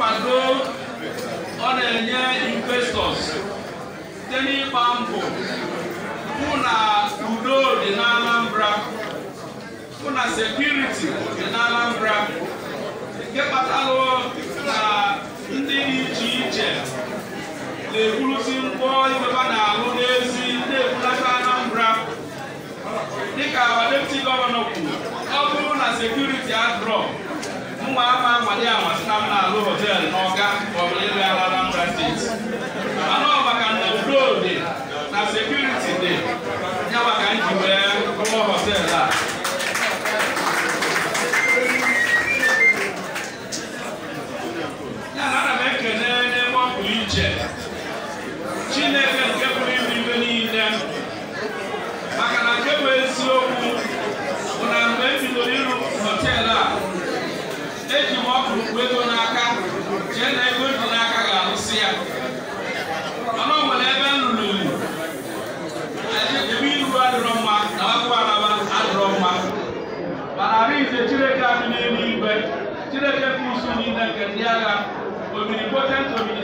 nkwado ọ na-enye investọs site n'ịgba mbọ hụ na udo dị n'anambra hụ na sekuriti dị na nke kpatalụ na ndị iche iche na-eburuzi ngwọ ibeba na-alụ n'ezi na-ebulata Anambra dịka deputy gọvanọ kwuru ọ bụrụ na sekuriti adrọ ụmụ ama amalị amasị na m na-alụ họteelụ n'ọnụ eji m ọkụrụ kwu ego n'aka chee na ego ji n'aka ga-arụsị ya mana ọ nwere ebe nlụrụ ilu ebe ilu adịrọ mma na akwụkwọ alaba adịrọ mma mana arụ ije chineke adị n'elu igwe chineke bụ usu niile nke ndị agha omiri potent omiri